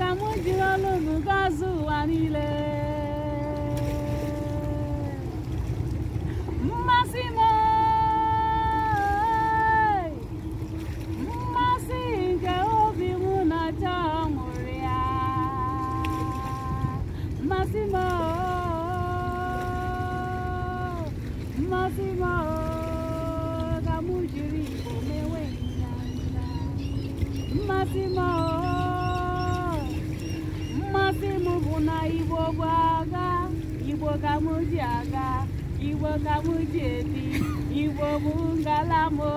ka m jiri ọlụ unu gọzie ụwa niile mmasị m mmasị nke obi m na chọọ mụrụ ya mmasị m mmasị m ka m jiri igbo mewe mmasị m na Igbo gbagha Igbo ka m ji aga Igbo ka ngalamo